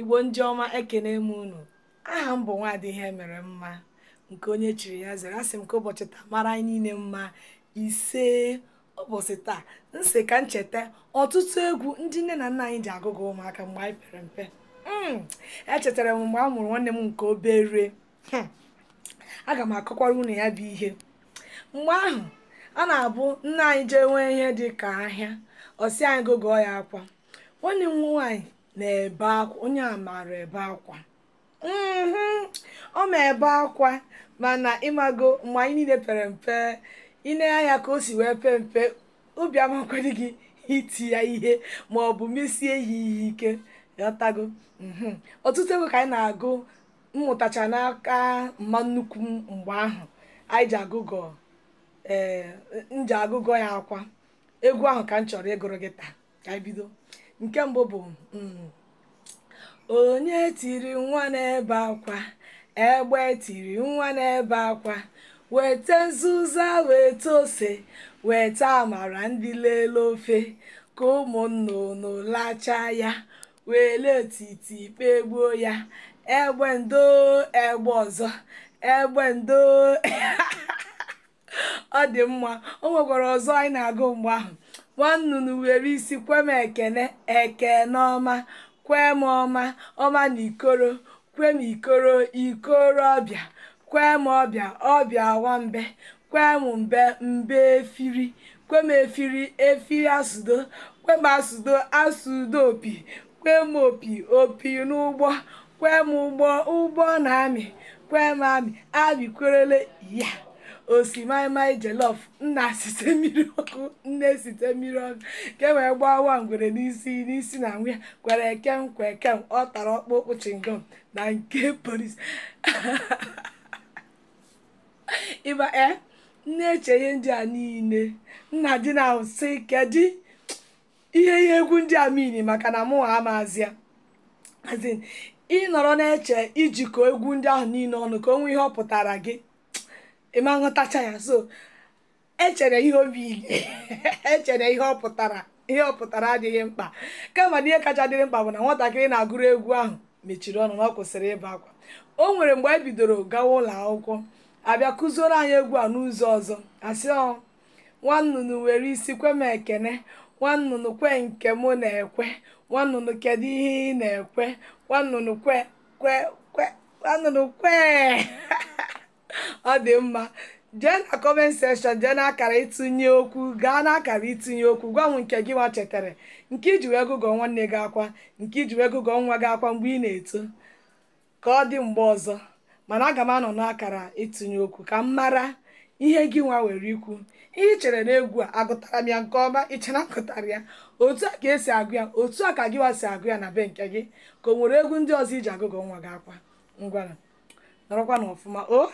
igbo ndị ọma ekene m unu aha m bụ nwaadị ihe mere mma nke onye chiri ya zere asị m ka ụbọchị taa mara anyị niile mma ise ụbọchị taa nsị ka ncheta ọtụtụ egwu ndị nne na nna anyị ji agụgụ ụmụaka mgbe anyị pere mpe hmm, echetara m mgbe a mụrụ nwanne m nke obere hmm, aga m akọkwara unu ya bụ ihe mgbe ahụ a na-abụ nna anyị jee nwee ihe dị ka ahịa ọsị anyị gụgụọ ya akwa nwanne m nwaanyị na-ebe akwa onye a maara ebe akwa mhm, ọ ma ebe akwa mana ịmago mgbe anyị niile pere mpe ine ya ka o si wee pee mpe obi amakwadị gị iti ya ihe ma ọ bụ mesie ya ihe ike ghọtago mhm. ọtụtụ ego ka anyị na-agụ mmụtacha n'aka mma nnukwu mgbe ahụ anyị ji agụgọ ee eh, m ji agụgọ ya akwa egwu ahụ ka m chọrọ ịgụrụ gị taa ka anyị bido nke mbụ bụ mm, onye tiri nwa na-ebe akwa egbe tiri nwa na akwa weta nzuzo weta ose weta amara ndị lele ofe ka ụmụnnụnụ lachaa ya wele otiti kpegbuo ya egbe ndo egbe ọzọ egbe ndo ọ dị mma o nwekwara ọzọ anyị na-agụ mgbe ahụ nwannunu nnụnụ were isi kwe m ekene ekeneọma ọma kwe m ọma ọma na ikoro kwe m ikoro ọbịa kwe m ọbịa ọbịa nwambe kwe m mbe mbe efiri kwe m efiri efiri asụdo kwe m asụdo asụdo opi kwe m opi opi n'ụgbọ kwe m ụgbọ ụgbọ na amị kwe m amị amị kwerele ya osimaimai jelof nna site mmiri ọkụ nne site mmiri ọkụ ke wee gbawa ngwere n'isi n'isi na nwunye kwere ekem kwa ekem ọ tara ọkpụkpụ chingom na nke polis ịba eh, e eche ihe ndị a niile nna dị na sị kedu ihe ihe egwu ndị a mini maka na mụ ha amazịa ịnọrọ na-eche ijikọ egwu ndị ahụ niile ọnụ ka o nwee ihe ọ pụtara gị ịma nghọtacha ya so echere ihe obi echere ihe ọ pụtara ihe ọ pụtara adịghị mkpa kama na ihe kacha dịrị mkpa bụ na nwatakịrị na-agụrụ egwu ahụ mechiri ọnụ na ọ kwụsịrị ịba akwa o nwere mgbe anyị e bidoro gawa ụlọ akwụkwọ abịa kụzioro anyị egwu a n'ụzọ ọzọ asị ọ nwa nnụnụ were isi kwem ekene nwa nnụnụ kwe nke mụ na-ekwe nwa nnụnụ kedu ihe ị na-ekwe nwa nnụnụ kwe kwe kwe nwa nnụnụ kwe ọ dị mma jee na kọment sekshọn jee n'akara itinye okwu gaa n'akara itinye okwu gwa m nke gị nwa chetara nke iji wee gụgọ nwanne gị akwa nke iji wee gụgọ nwa gị akwa mgbe ị na-eto ka ọ dị mgbe ọzọ mana aga m anọ n'akara itinye okwu ka m mara ihe gị nwa were ikwu ihe chere na egwu a agụtara m ya nke ọma ichena agụtara ya otu a ka esi agụ ya otu a ka gị nwa si agụ ya na be nke gị ka o nwere egwu ndị ọzọ iji agụgọ nwa gị akwa ngwara nọrọkwa ọfụma o